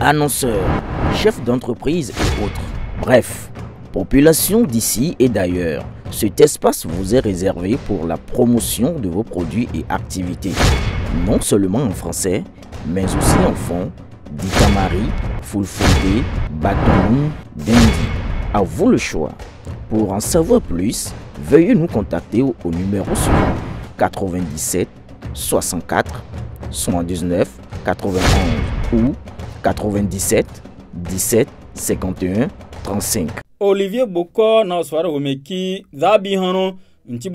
Annonceurs, chefs d'entreprise et autres. Bref, population d'ici et d'ailleurs, cet espace vous est réservé pour la promotion de vos produits et activités. Non seulement en français, mais aussi en fond, Dikamari, Fulfulde, Batoum, Dendi. À vous le choix. Pour en savoir plus, veuillez nous contacter au, numéro suivant 97 64 79 91 ou 97 17 51 35. Olivier Boko na swara womeki zabi hano nti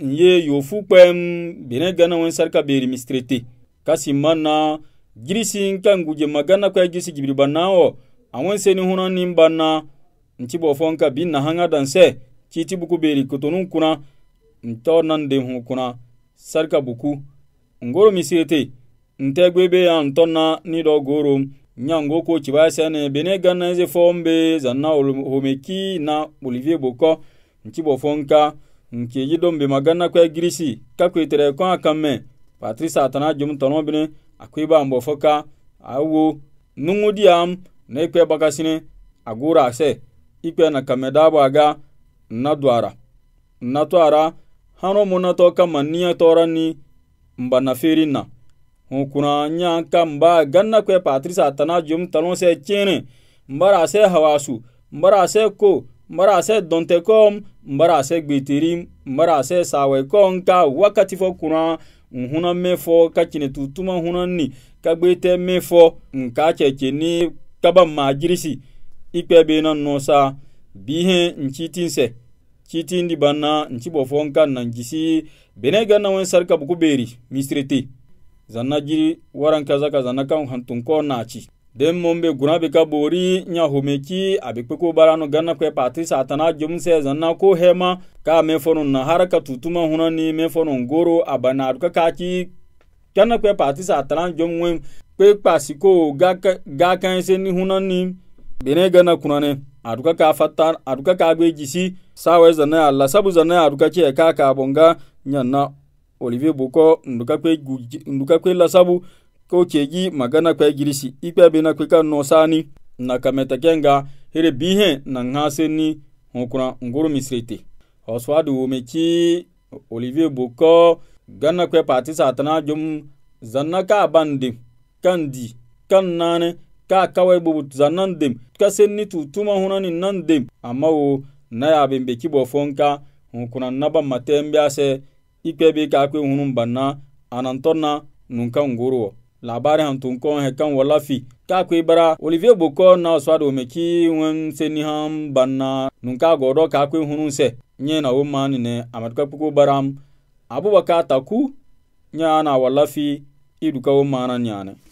nye Yofupem kpem bene gana beri mistrete kasi mana girisi nka nguje magana kwa de gibiri banawo ni seni hunan nti bofonka bin na hanga dan se citi buku beri kutunun kuna ntor na de hu kuna sarka buku ngoro misirete nte be ya ntonna ni do goro nyango ko cibase ne bene ganna ze fombe zanna homeki na olivier boko nti bofonka nke yidombe magana kwa girisi kakwe tere kwa akamme patrice atana jum bene bine akwe ba awo nungu diam ne kwe bagasine agura ase ikpena kamedabaga nnadwara nnatwara hãro munato kama nia torani mba na ferinna hũkũrã yã ka mba ganna kue patrisa atana jom talõ sẽ kẽene mbara sẽ hawasu mbara sẽ ko mbara sẽ dõnte kom mbara sẽ gbeteri mbara sẽ sawe kom ka wakati fo kũrã n hũna me ka kine tutuma hũnan ni ka gbete me fo n ka kaba maa jirisi. ikpebe na nusa bihe nchitinse chitindi banna nchibo fonkan nan jisi bene ganna wen sarka buku beri misrete zanna jiri waran zana ka zanna kan hantun ko naci den mombe guna be ka bori nya homeki abe kpeko barano ganna kwe patri satana jumse zana ko hema ka me na haraka tutuma huna ni, fonun goro abana ka kaki ganna kwe patri satana jumwen kwe pasiko ga kan se ni hunani bene gana kunane aduka ka fattar aduka ka gbe jisi sawe zana alla sabu zana aduka ce ka ka bonga nyanna olivier boko nduka kwe nduka kwe la sabu ko ceji magana kwe girisi ikpe bena kwe ka no sani na kameta kenga here bihe na ngase ni hunkuna nguru misrete oswadu mechi olivier boko gana kwe pati satana jum zanna ka bandi kandi kan nane ka kawai bubut zanan dem kasen ni tutuma hunani nan dem amma wo na yabin be kibo fonka hunkuna naba maten biase ikpe bi ka kwe hunun banna anantonna nunka ngoro labari hantun kon he kan wala fi ka kwe bara olivier boko na swado me ki wen seni ham banna ka godo ka kwe hunun se nye na wo mani ne amatka puko baram abubakar taku nya na wala fi iduka wo mana nyane